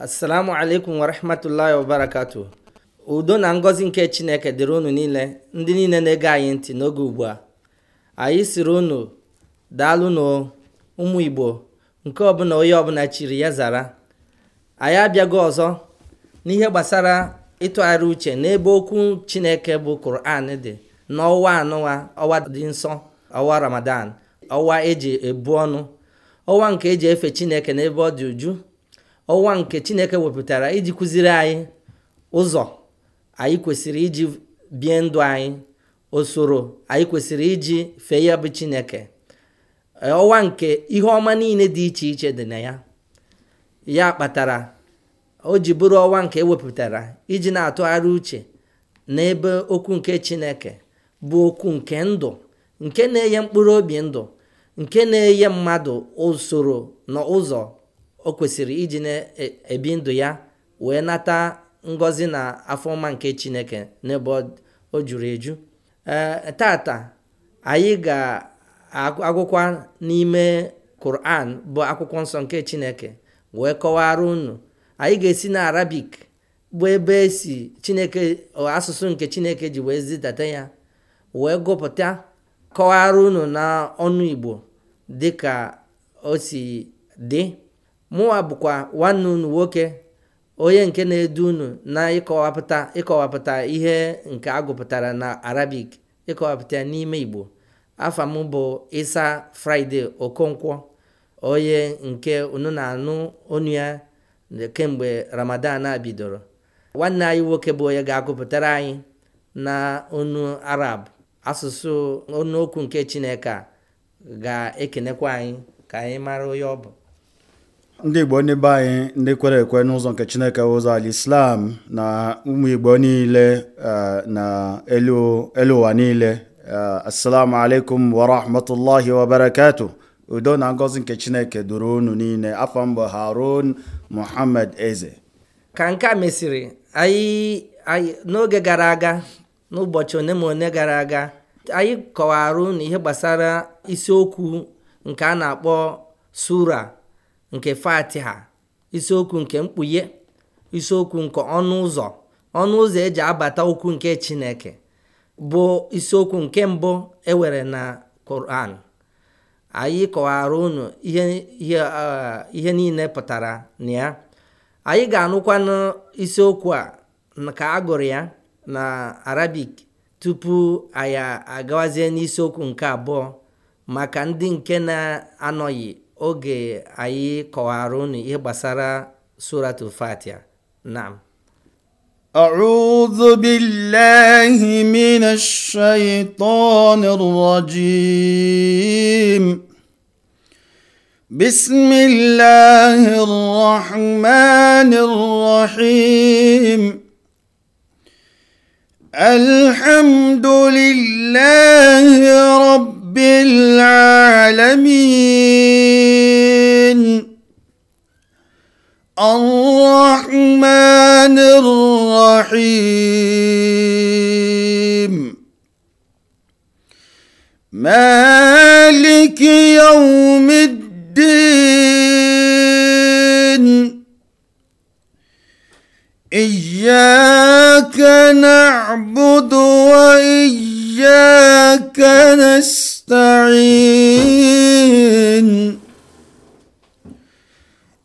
assalamu alaikum warahmatullahi wabarakatu udo na ngọzi nke chineke dịrị unu niile ndị niile na-ege anyị ntị n'oge ugbu a anyị siri unu daalụ na ụmụ igbo nke ọbụla onye ọbụla chiri ya zara anyị abịago ọzọ n'ihe gbasara ịtụgharị uche n'ebe okwu chineke bụ kuran dị n'ọwa anụwa ọwa dị nsọ ọwa ramadan ọwa eji ebu ọnụ ọwa nke eji efe chineke n'ebe ọ dị uju ọwa nke chineke wepụtara iji kụziri anyị ụzọ anyị kwesịrị iji bie ndụ anyị usoro anyị kwesịrị iji fee ya bụ chineke ọwa nke ihe ọma niile dị iche iche dị na ya ya kpatara o ji bụrụ ọwa nke ewepụtara iji na-atụgharị uche n'ebe okwu nke chineke bụ okwu nke ndụ nke na-enye mkpụrụ obi ndụ nke na-enye mmadụ usoro na ụzọ o kwesịrị iji na-ebi e, ndụ ya wee nata ngọzi na afọma nke chineke n'ebe o juru eju e, tata anyị ga-agụkwa n'ime Quran bụ akwụkwọ nsọ nke chineke wee kọwara unu anyị ga-esi na arabik bụ ebe si chineke asụsụ nke chineke ji wee zidata ya wee gụpụta kọwara unu na ọnụ igbo dịka o si dị mụnwa bụkwa nwanne unu nwoke onye nke na-edu unu na ịkọwapụta ịkọwapụta ihe nke agụpụtara na arabic ịkọwapụta n'ime igbo afọ m bụ isa fraịde okonkwo onye nke unu na-anụ onu ya kemgbe ramadan a bidoro nwanne anyị nwoke bụ onye ga-agụpụtara anyị na onu arab asụsụ okwu nke chineke ga-ekenekwa anyị ka anyị mara onye ọ bụ ndị igbo ndị be anyị ndị kwere ekwe n'ụzọ nke chineke ụzọ ala islam na ụmụ igbo niile e, na elu ụwa niile e, assalamu alaikum wa rahmatullahi wa barakatu udo na ngozi nke chineke duru unu niile afọ mbụ harun muhammad eze ka nke a mesịrị anyị n'oge gara aga n'ụbọchị one ma one gara aga anyị kọwara unu ihe gbasara isiokwu nke a na-akpọ sura nke fatiha isiokwu nke mkpughe isiokwu nke ọnụ ụzọ ọnụ ụzọ eji abata okwu nke chineke bụ isiokwu nke mbụ ewere na koran anyị kọwara unu eh, ihe niile pụtara na ya anyị ga-anụkwanụ isiokwu a ka a gụrụ ya na arabik tupu anyị agawazie n'isiokwu nke abụọ maka ndị nke na-anọghị oge anyị kọwara unu ihe gbasara suratul fatia naam أعوذ بالله من الشيطان الرجيم بسم الله الرحمن الرحيم الحمد nlụrụhụm meeelikiowume dị ijiekenabudowa ijiykenestarihe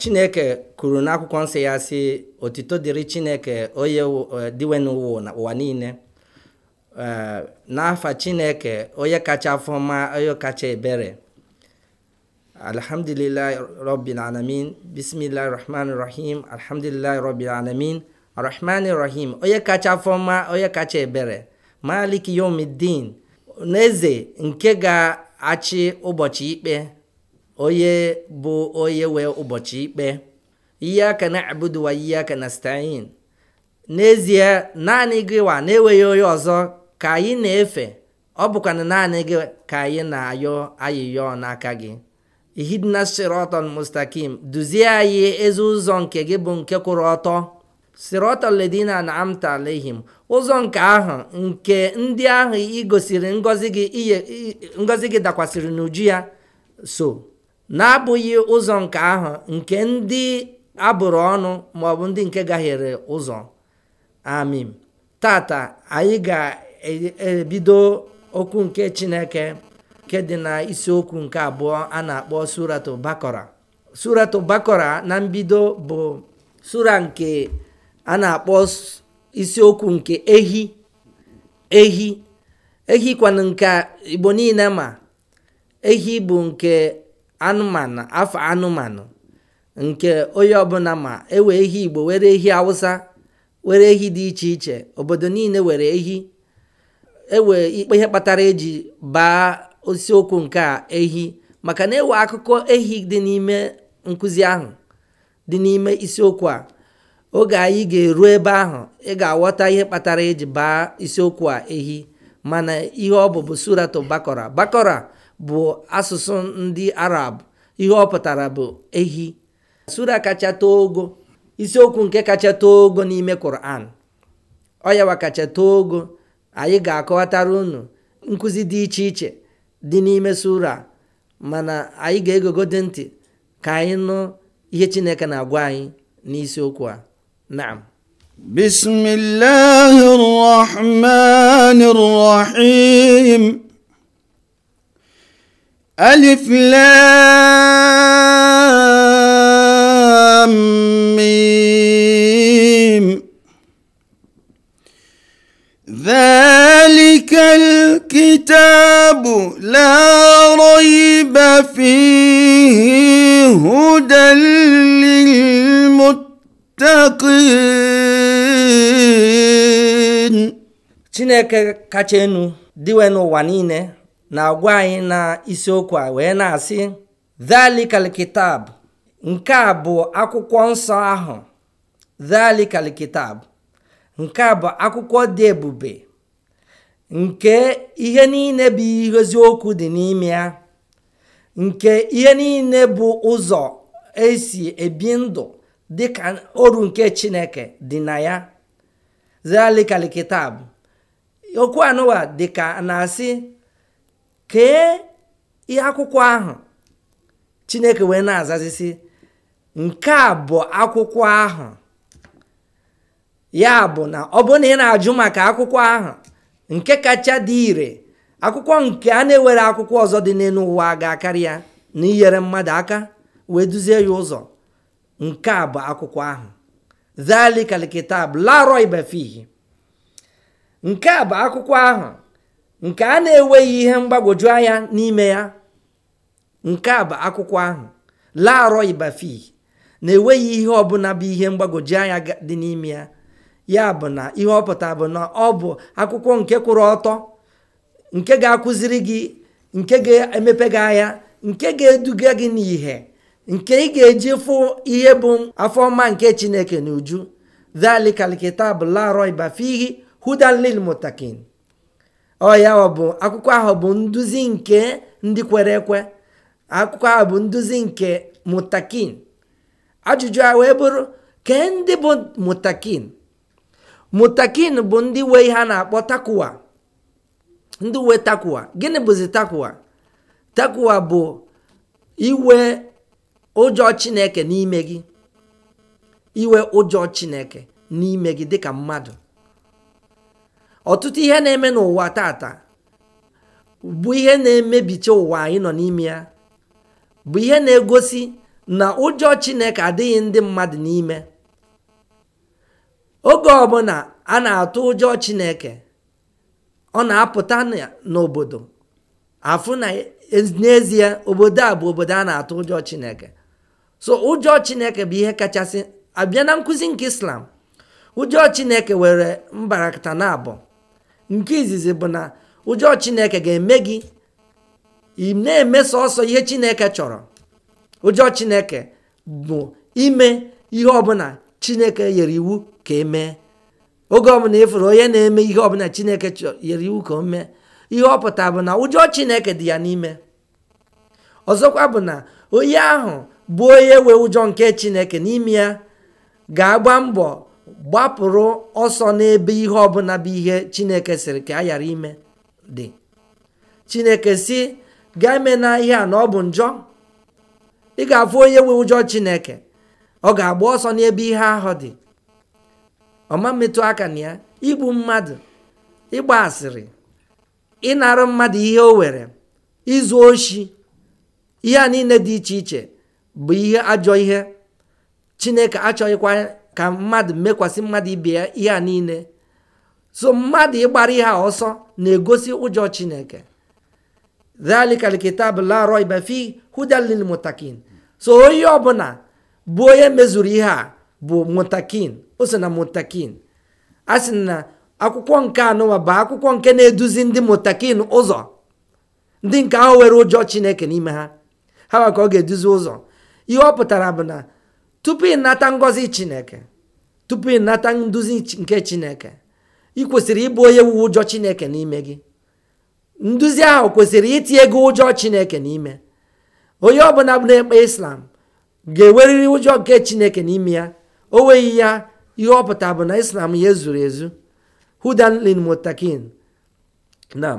chineke kwuru n'akwụkwọ nsọ ya si otito dịrị chineke onye eh, dịwe n'ụwa na ụwa niile eh, n'afa chineke onye kacha afọma onye kacha ebere alhamdulillahi rabbil alamin bismillahi rahman rahim alhamdulillahi rabbil alamin rahman rahim onye kacha afọma onye kacha ebere malik yomidin n'eze nke ga-achị ụbọchị ikpe onye bụ onye wee ụbọchị ikpe iyyaka na'budu wa na stein n'ezie naanị gị wa na-enweghị onye ọzọ ka anyị na-efe ọ bụkwana naanị gị ka anyị na-ayọ ayịyọ n'aka gị ihidna siratan mustakim duzie anyị ezi ụzọ nke gị bụ nke kwụrụ ọtọ siratan ledina na amta alehim ụzọ nke ahụ nke ndị ahụ igosiri ngozi gị dakwasịrị n'uju ya so na-abụghị ụzọ nke ahụ nke ndị abụrụ ọnụ maọbụ ndị nke gaghịrị ụzọ amim tata anyị ga-ebido okwu nke chineke nke dị na isiokwu nke abụọ a na-akpọ suratu bakora suratu bakora na mbido bụ sura nke a na-akpọ isiokwu nke ehi ehi ehi nke igbo niile ma ehi bụ nke anụmanụ afọ anụmanụ nke onye ọbụla ma ewe ehi igbo were ehi awụsa were ehi dị iche iche obodo niile were ehi ewe ikpe ihe kpatara eji baa isiokwu nke a ehi maka na ewe akụkọ ehi dị n'ime nkụzi ahụ dị n'ime isiokwu a oge anyị ga-eru ebe ahụ ị ga-aghọta ihe kpatara eji baa isiokwu a ehi mana ihe ọ bụ bụ suratu bakọra bakọra bụ asụsụ ndị arab ihe ọ pụtara bụ ehi sura kacha too ogo isiokwu nke kacha too ogo n'ime Quran ọyawa kacha too ogo anyị ga-akọwatara unu nkụzi dị iche iche dị n'ime sura mana anyị ga-egogode ntị ka anyị nụ ihe Chineke na-agwa anyị n'isiokwu a naam bismillahir rahmanir rahim a flam veelikekitebụ lerụ ibefhihụdeirimotek chineke kacha enu dịwe n'ụwa niile. na-agwa anyị na isiokwu a wee na-asị dhalikal kitab nke a bụ akwụkwọ nsọ ahụ dhalikal kitab nke a bụ akwụkwọ dị ebube nke ihe niile bụ eziokwu dị n'ime ya nke ihe niile bụ ụzọ esi ebi ndụ dị ka oru nke chineke dị na ya zalikal okwu anụwa dịka na-asị kee ihe akwụkwọ ahụ chineke wee na-azazisi nke a bụ akwụkwọ ahụ ya bụ na ọ bụrụ na ị na-ajụ maka akwụkwọ ahụ nke kacha dị ire akwụkwọ nke a na-ewere akwụkwọ ọzọ dị n'elu ụwa ga-akarị ya na inyere mmadụ aka wee duzie ya ụzọ nke a bụ akwụkwọ ahụ zalikalikita bụ nke a bụ akwụkwọ ahụ nke a na-enweghị ihe mgbagwoju anya n'ime ya nke a bụ akwụkwọ ahụ laarọ ibafi na-enweghị ihe ọbụla bụ ihe mgbagwoju anya dị n'ime ya ya bụ na ihe ọ bụ na ọ bụ akwụkwọ nke kwụrụ ọtọ nke ga-akụziri gị nke ga-emepe gị anya nke ga-eduga gị n'ihe nke ị ga-eji fụ ihe bụ afọ afọma nke chineke na uju dhalika alkitab la raiba hudan ọ ya ọ bụ akwụkwọ ahụ bụ nduzi nke ndị kwere ekwe akwụkwọ ahụ bụ nduzi nke mutakin ajụjụ a wee bụrụ kee ndị bụ mutakin mutakin bụ ndị wee ihe a na-akpọ takuwa ndị uwe takuwa gịnị bụzi takuwa takuwa bụ iwe ụjọ chineke n'ime gị iwe ụjọ chineke n'ime gị dịka mmadụ ọtụtụ ihe na-eme n'ụwa tata bụ ihe na-emebicha ụwa anyị nọ n'ime ya bụ ihe na-egosi na ụjọ chineke adịghị ndị mmadụ n'ime oge ọbụla a na-atụ ụjọ chineke ọ na-apụta n'obodo afụ na n'ezie obodo a bụ obodo a na-atụ ụjọ chineke so ụjọ chineke bụ ihe kachasị abịa na nkụzi nke islam ụjọ chineke were mbarakata na abụọ nke izizi bụ na ụjọ chineke ga-eme gị na-eme sọsọ ihe chineke chọrọ ụjọ chineke bụ ime ihe ọbụla chineke nyere iwu ka emee oge ọbụla ifuru onye na-eme ihe ọbụla chineke nyere iwu ka o mee ihe ọpụta bụ na ụjọ chineke dị ya n'ime ọzọkwa bụ na onye ahụ bụ onye wee ụjọ nke chineke n'ime ya ga-agba mbọ gbapụrụ ọsọ n'ebe ihe ọbụla bụ ihe chineke sịrị ka a ghara ime dị chineke si gaa eme na ihe a na ọ bụ njọ ị ga-afụ onye nwe ụjọ chineke ọ ga-agba ọsọ n'ebe ihe ahụ dị ọma mmetụ aka na ya igbu mmadụ ịgba asịrị ịnara mmadụ ihe o were izu oshi ihe a niile dị iche iche bụ ihe ajọ ihe chineke achọghịkwa ka mmadụ mekwasị mmadụ ibe ya ihe a niile so mmadụ ịgbara ihe a ọsọ na-egosi ụjọ chineke dhalika alkitab la fi mutakin so onye ọbụla bụ onye mezuru ihe a bụ mutakin o so na mutakin a sị na akwụkwọ nke anụwa bụ akwụkwọ nke na-eduzi ndị mutakin ụzọ ndị nke ahụ nwere ụjọ chineke n'ime ha ha maka ọ ga-eduzi ụzọ ihe ọ pụtara bụ na tupu ịnata ngọzi chineke tupu ịnata nduzi nke chineke ị kwesịrị ịbụ onye wu ụjọ chineke n'ime gị nduzi ahụ kwesịrị itinye gị ụjọ chineke n'ime onye ọbụla na-ekpe islam ga-enwerịrị ụjọ nke chineke n'ime ya o nweghị ya ihe na islam ya ezuru ezu hudan mutakin nam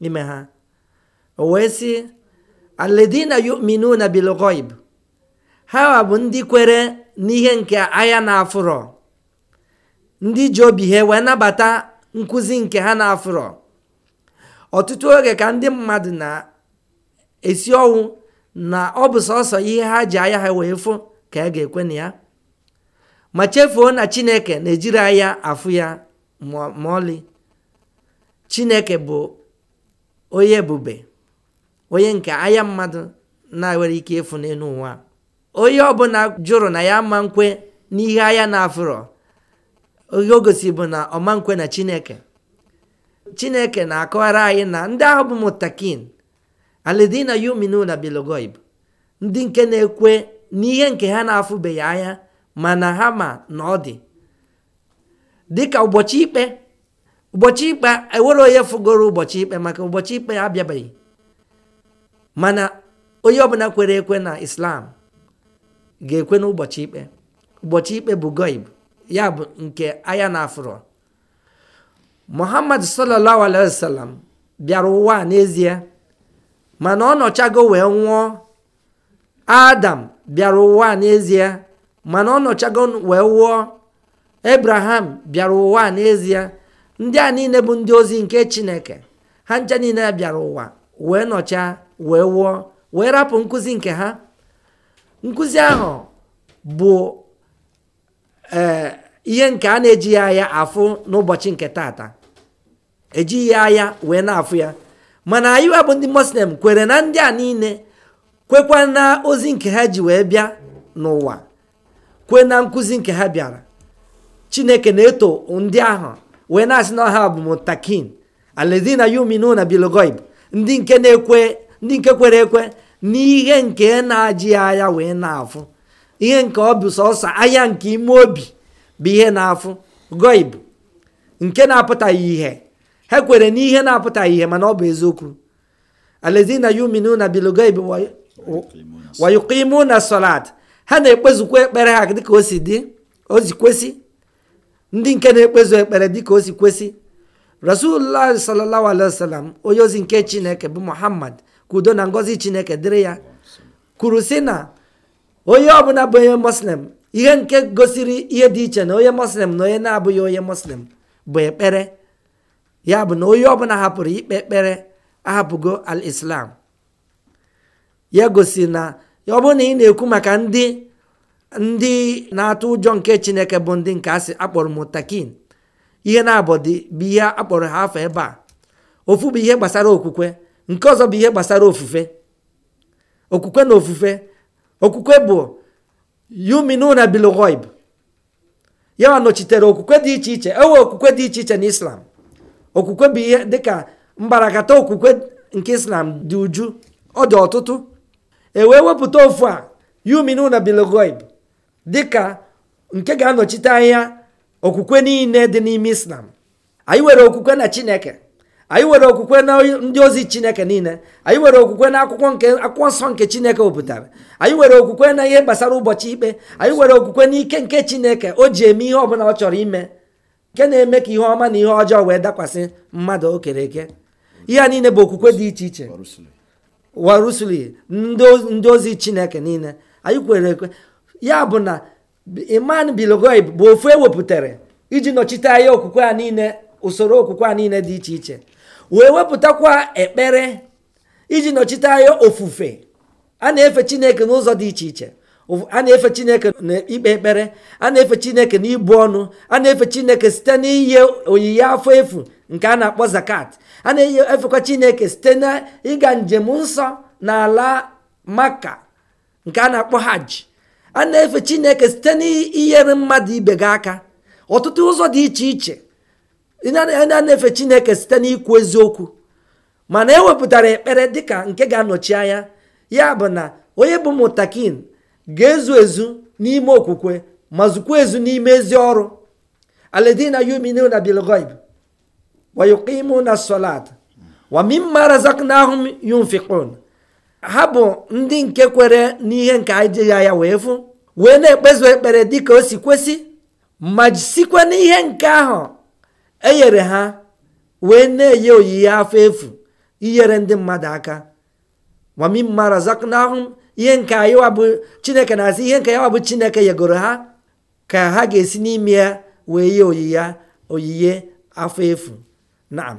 n'ime ha o wee sị aledina na bilgoib ha bụ ndị kwere n'ihe nke anya na-afụrọ ndị ji obi ha wee nabata nkụzi nke ha na-afụrọ ọtụtụ oge ka ndị mmadụ na-esi ọnwụ na ọ bụ sọsọ ihe ha ji anya ha wee fụ ka a ga-ekwe na ya ma chefuo na chineke na-ejiri anya afụ ya ma ọlị chineke bụ onye ebube onye nke anya mmadụ na-enwere ike ịfụ n'elu ụwa onye ọbụla jụrụ na ya ma nkwe n'ihe anya na-afụrọ oge o gosi bụ na ọma nkwe na chineke chineke na-akọwara anyị na ndị ahụ bụ mutakin alidina yuminuna bilogoib ndị nke na-ekwe n'ihe nke ha na-afụbeghị anya mana ha ma na ọ dị dịka ụbọchị ikpe ụbọchị ikpe ewere onye fụgoro ụbọchị ikpe maka ụbọchị ikpe abịabeghị mana onye ọbụla kwere ekwe na islam ga-ekwe n'ụbọchị ikpe ụbọchị ikpe bụ goib ya bụ nke anya na afro muhammad sallallahu alaihi bịara ụwa n'ezie mana ọ nọchago wee nwụọ adam bịara ụwa n'ezie mana ọ nọchago wee nwụọ ebraham bịara ụwa n'ezie ndị a niile bụ ndị ozi nke chineke ha ncha niile bịara ụwa wee nọchaa wee wụọ wee rapụ nkụzi nke ha nkụzi ahụ bụ ee ihe nke a na-ejighị anya afụ n'ụbọchị nke taata ejighị anya wee na-afụ ya mana anyị bụ ndị muslim kwere na ndị a niile kwekwa na ozi nke ha ji wee bịa n'ụwa kwe na nkụzi nke ha bịara chineke na-eto ndị ahụ wenas n'ọha bụ mutakin aledina yuminuna bilogoib ndị nke na-ekwe ndị nke kwere ekwe n'ihe nke na-ajị anya wee na-afụ ihe nke ọ bụ sọsọ anya nke ime obi bụ ihe na-afụ goib nke na-apụtaghị ihe ha kwere n'ihe na-apụtaghị ihe mana ọ bụ eziokwu ha na-ekpezukwa ekpere ha ndị nke na-ekpezu ekpere dịka o si kwesị rasulullah sallallahu alaihi wasallam onye ozi nke chineke bụ muhammad ka udo na ngozi chineke dịrị ya kwuru si na onye ọbụla bụ onye muslim ihe nke gosiri ihe dị iche na onye muslim na onye na-abụghị onye muslim bụ ekpere ya bụ na onye ọbụla hapụrụ ikpe ekpere ahapụgo al islam ya gosi na ọ bụrụ na ị na-ekwu maka ndị ndị na-atụ ụjọ nke chineke bụ ndị nke asị akpọrọ mụtakin ihe na-abọdị bụ ihe akpọrọ ha afọ ebe a ofu bụ ihe gbasara okwukwe nke ọzọ bụ ihe gbasara ofufe okwukwe na ofufe okwukwe bụ yuminuna bilghaib ya nọchitere okwukwe dị iche iche ewe okwukwe dị iche iche na islam okwukwe bụ ihe dịka mbarakata okwukwe nke islam dị uju ọ dị ọtụtụ e wee wepụta ofu a yuminuna bilghaib dịka nke ga-anọchite anya okwukwe niile dị n'ime islam anyị nwere okwukwe na chineke anyị nwere okwukwe na ndị ozi chineke niile anyị nwere okwukwe na akwụkwọ nke akwụkwọ nsọ nke chineke wepụtara anyị nwere okwukwe na ihe gbasara ụbọchị ikpe anyị nwere okwukwe na ike nke chineke o ji eme ihe ọbụla ọ chọrọ ime nke na-eme ka ihe ọma na ihe ọjọọ wee dakwasị mmadụ o kere eke ihe a niile bụ okwukwe dị iche iche warusuli ndị ozi chineke niile anyị kwere ekwe ya bụ na iman bilgoib bụ ofu ewepụtara iji nọchite anya okwukwe a niile usoro okwukwe a niile dị iche iche wee wepụtakwa ekpere iji nọchite anya ofufe a na-efe chineke n'ụzọ dị iche iche a na-efe chineke na ikpe ekpere a na-efe chineke na ibu ọnụ a na-efe chineke site n'iye oyiyi afọ efu nke a na-akpọ zakat a na-efekwa chineke site na ịga njem nsọ n'ala maka nke a na-akpọ hajj a na-efe chineke site n'inyere mmadụ ibe gị aka ọtụtụ ụzọ dị iche iche a na-efe chineke site n'ikwu eziokwu mana ewepụtara ekpere dịka nke ga-anọchi anya ya bụ na onye bụ mụtakin ga-ezu ezu n'ime okwukwe ma zukwa ezu n'ime ezi ọrụ aledina yuminuna bilgoib wayuqimuna solat wa ha bụ ndị nke kwere n'ihe nke anyị ya wee fụ wee na-ekpezu ekpere dịka o si kwesị ma sikwa n'ihe nke ahụ enyere ha wee na-enye oyiye afọ efu inyere ndị mmadụ aka mara razaqnahum ihe nke anyị bụ chineke na-asị ihe nke ya wabụ chineke yegoro ha ka ha ga-esi n'ime ya wee yie oyiye oyiye afọ efu naam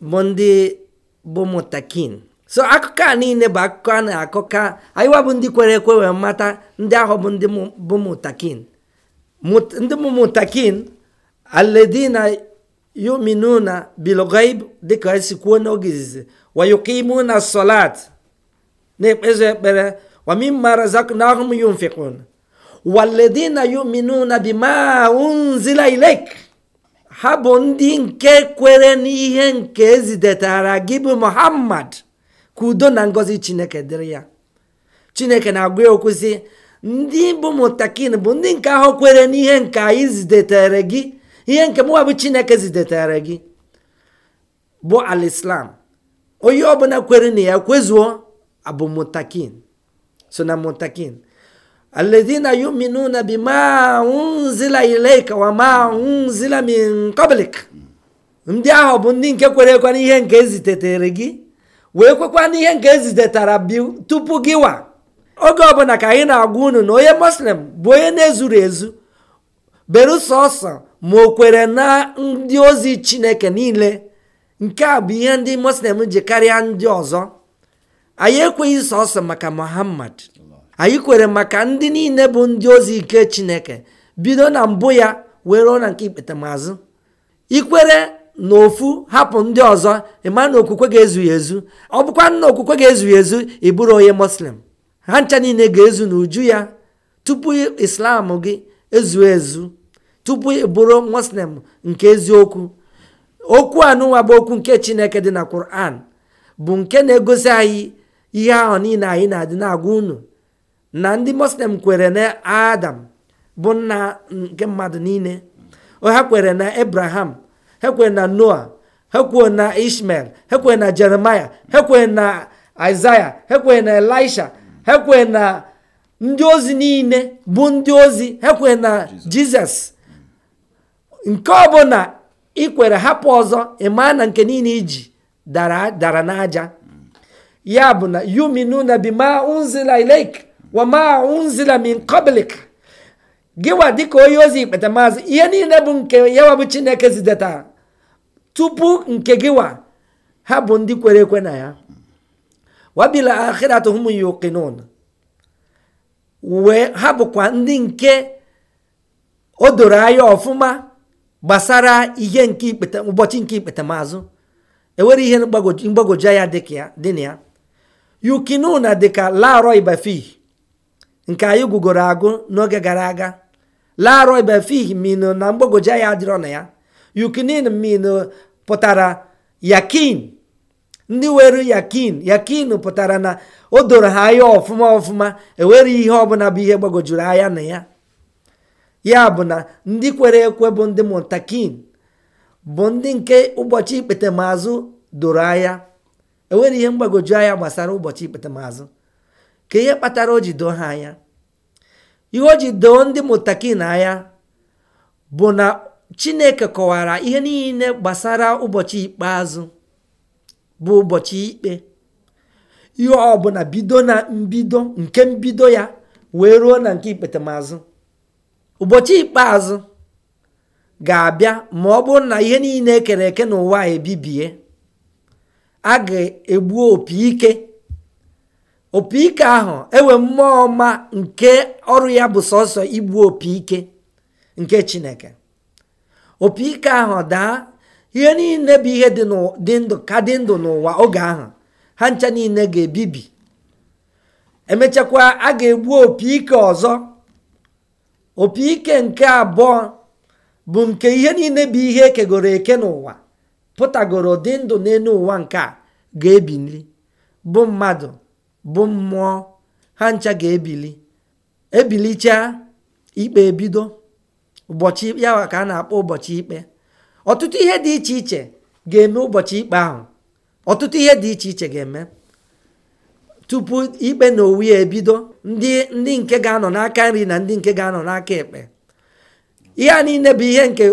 ndị bụ mụtakin so akụkọ a niile bụ akụkọ a na-akọka anyịwa bụ ndị kwere ekwe wee mata ndị ahụ bụ ndị bụ mụtakin ndị bụ mụtakin aledina yuminuna bilgaib dịka esi kwuo n'oge izizi na solat na-ekpezu ekpere wamimma razaknahum yunfikun waledina yuminuna bima ilek ha bụ ndị nke kwere n'ihe nke ezidetara gị bụ muhammad ka udo na ngozi chineke dịrị ya chineke na-agwa ya okwu sị ndị bụ mụtakin bụ ndị nke ahụ kwere n'ihe nke anyị zidatara gị ihe nke mụwa bụ chineke zidatara gị bụ alislam onye ọbụla kwere na ya kwezuo abụ mụtakin so na mụtakin alladhina yu'minuna bima unzila ilayka wa unzila min qablik ndị ahụ bụ ndị nke kwere ekwe n'ihe nke ezitetere gị wee kwekwa n'ihe nke ezitetara bi tupu gị wa oge ọbụla ka anyị na-agwa unu na onye muslim bụ onye na-ezuru ezu berusọsọ ma o kwere na ndị ozi chineke niile nke a bụ ihe ndị muslim ji karịa ndị ọzọ anyị ekweghị sọsọ maka muhammad anyị kwere maka ndị niile bụ ndị ozi ike chineke bido na mbụ ya wee ruo na nke ikpetamazụ ikwere na ofu hapụ ndị ọzọ ịma na okwukwe ga ezughi ezu ọ bụkwa nna okwukwe ga ezughi ezu ịbụrụ onye muslim ha ncha niile ga-ezu n'uju ya tupu islam gị ezu ezu tupu ị bụrụ muslim nke eziokwu okwu anụnwa bụ okwu nke chineke dị na quran bụ nke na-egosi anyị ihe ahụ niile anyị na-adị na-agwa unu na ndị muslim kwere na adam bụ nna nke mmadụ niile ha kwere na abraham ha kwere na noa ha kwere na ishmael ha kwere na jeremaya ha kwere na isaya ha kwere na elisha ha kwere na ndị ozi niile bụ ndị ozi ha kwere na jizọs nke ọ ọbụla ikwere hapụ ọzọ ịma na nke niile iji dara n'aja ya bụ na yuminu na bima unzila ilek wama unzila min qablik giwa dịka onye ozi ikpeta maazị ihe niile bụ nke yawa bụ chineke zideta tupu nke giwa ha bụ ndị kwere ekwe na ya wabil akhiratuhum yuqinun wee ha bụkwa ndị nke o doro anya ọfụma gbasara ihe nke ikpeta ụbọchị nke ikpetamazụ enwere ihe mgbagwoju anya dị na ya dị ka larọ ibafi nke anyị gwugoro agụ n'oge gara aga laarọ ibefih min na mgbagwoju anya adịrọ na ya yukinin min pụtara yakin ndị nwere yakin yakin pụtara na o doro ha anya ọfụma ọfụma enwere ihe ọbụla bụ ihe gbagwojuru anya na ya ya bụ na ndị kwere ekwe bụ ndị mụtakin bụ ndị nke ụbọchị ikpete doro anya enwere ihe mgbagwoju anya gbasara ụbọchị ikpete ka ihe kpatara o ji doo ha anya ihe o doo ndị mụtaki na anya bụ na chineke kọwara ihe niile gbasara ụbọchị ikpeazụ bụ ụbọchị ikpe ihe ọbụla bido na mbido nke mbido ya wee ruo na nke ikpetemazụ ụbọchị ikpeazụ ga-abịa ma ọ bụrụ na ihe niile ekere eke n'ụwa ebibie a ga-egbu opi ike opi ike ahụ enwe mmụọ ọma nke ọrụ ya bụ sọsọ igbu opi ike nke chineke opi ike ahụ daa ihe niile bụ ihe dị ndụ ka dị ndụ n'ụwa oge ahụ ha ncha niile ga-ebibi emechakwa a ga-egbu opi ike ọzọ opi ike nke abụọ bụ nke ihe niile bụ ihe ekegoro eke n'ụwa pụtagoro dị ndụ n'elu ụwa nke a ga nri bụ mmadụ bụ mmụọ ha ncha ga-ebili ebilicha ikpe ebido ụbọchị ya ka a na-akpọ ụbọchị ikpe ọtụtụ ihe dị iche iche ga-eme ụbọchị ikpe ahụ ọtụtụ ihe dị iche iche ga-eme tupu ikpe na owu ya ebido ndị ndị nke ga-anọ n'aka nri na ndị nke ga-anọ n'aka ekpe ihe a niile bụ ihe nke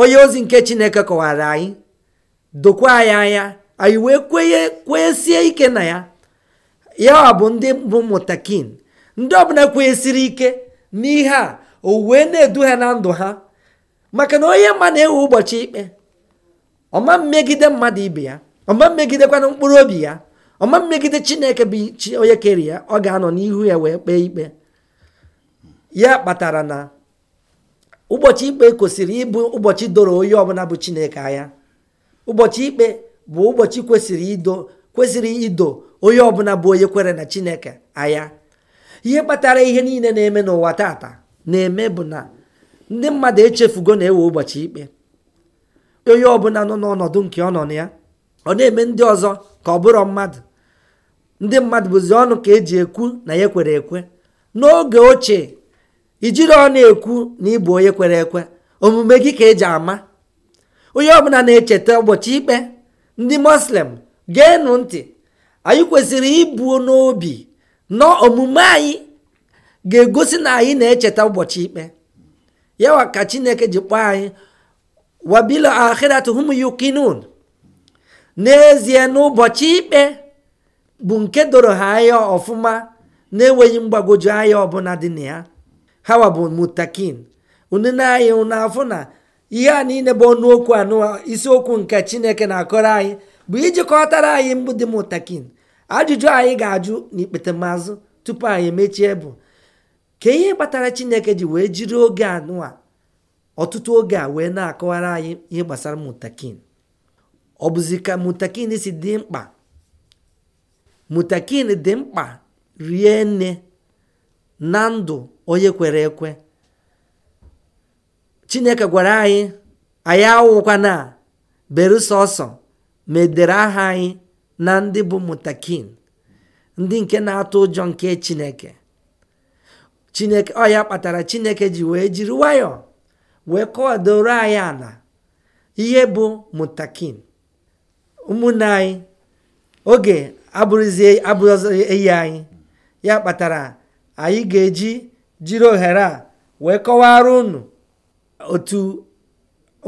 onye ozi nke chineke kọwara anyị dokwa anyị anya anyị wee kwesie ike na ya ya bụ ndị bụ mụtakin ndị ọbụla kwenyesiri ike n'ihe a o wee na-edu ha na ndụ ha maka na onye ma na-ewe ụbọchị ikpe ọma mmegide mmadụ ibe ya ọma mmegidekwana mkpụrụ obi ya ọma mmegide chineke bụ chi onye kere ya ọ ga-anọ n'ihu ya wee kpee ikpe ya kpatara na ụbọchị ikpe kwesịrị ịbụ ụbọchị doro onye ọbụla bụ chineke anya ụbọchị ikpe bụ ụbọchị kwesịrị ido kwesịrị ido onye ọbụla bụ onye kwere na chineke anya ihe kpatara ihe niile na-eme n'ụwa tata na-eme bụ na ndị mmadụ echefugo na-ewe ụbọchị ikpe onye ọbụla nọ n'ọnọdụ nke ọ nọ na ya ọ na-eme ndị ọzọ ka ọ bụrụ mmadụ ndị mmadụ bụzi ọnụ ka eji ekwu na ya kwere ekwe n'oge ochie ijiri ọnụ ekwu na ịbụ onye kwere ekwe omume gị ka eji ama onye ọbụla na-echeta ụbọchị ikpe ndị muslim geenụ ntị anyị kwesịrị ibu n'obi na omume anyị ga-egosi na anyị na-echeta ụbọchị ikpe yawa ka chineke ji kpọọ anyị wabila akhirat hum yukinun n'ezie n'ụbọchị ikpe bụ nke doro ha anya ọfụma na-enweghị mgbagwoju anya ọbụla dị na ya hawa bụ mutakin unu na-anyị n'afọ na ihe a niile bụ ọnụokwu okwu anụ isiokwu nke chineke na-akọrọ anyị bụ ijikọtara anyị mbụ dị mutakin ajụjụ anyị ga-ajụ n'ikpete mazụ tupu anyị emechie bụ ka ihe kpatara chineke ji wee jiri oge anụa ọtụtụ oge a wee na-akọwara anyị ihe gbasara mutakin ọ bụzi ka mutakin si dị mkpa mutakin dị mkpa rie nne na ndụ onye kwere ekwe chineke gwara anyị anyị awụkwana bere sọsọ ma aha anyị na ndị bụ mutakin ndị nke na-atụ ụjọ nke chineke chineke ọ ya kpatara chineke ji wee jiri nwayọọ wee kọwadoro anyị ala ihe bụ mutakin ụmụnne anyị oge abụrụzie eyi anyị ya kpatara anyị ga-eji jiri ohere a wee kọwara unu otu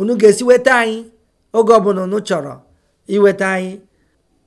unu ga-esi weta anyị oge ọbụla unu chọrọ iweta anyị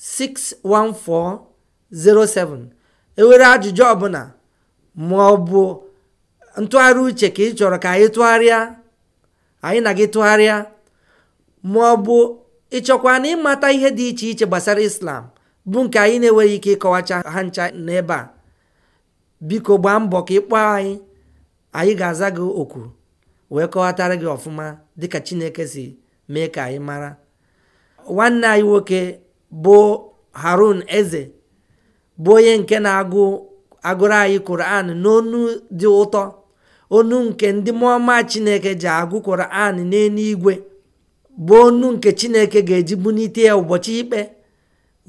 61407 enwere ajụjụ ọbụla ma ntụgharị uche ka ị chọrọ ka anyị tụgharịa anyị na gị tụgharịa ma ọ ịchọkwa na ịmata ihe dị iche iche gbasara islam bụ nke anyị na-enweghị ike ịkọwacha ha ncha n'ebe a biko gbaa mbọ ka ị kpọọ anyị anyị ga-aza gị oku wee kọwatara gị ọfụma dịka chineke si mee ka anyị mara nwanne anyị nwoke bụ harun eze bụ onye nke na-agụ agụrụ anyị n'onu dị ụtọ onu nke ndị mmụọma chineke ji agụ koran igwe bụ onu nke chineke ga-eji bunite ya ụbọchị ikpe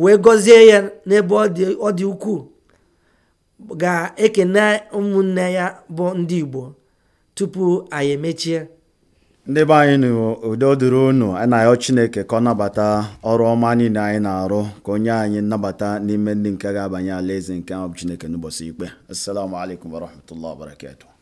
wee gọzie ya n'ebe ọ dị ukwuu ga-ekene ụmụnne ya bụ ndị igbo tupu anyị emechie ndị be anyị n'udo dịrị unu anayọ chineke ka ọ nabata ọrụ ọma niile anyị na-arụ ka onye anyị nnabata n'ime ndị nke ga-abanye alaeze nke ahụ chineke n'ụbọchị ikpe assalamu alaikum warahmatullahi wabarakatuh